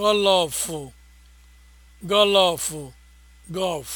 gọlọfụ gọlọfụ gọlf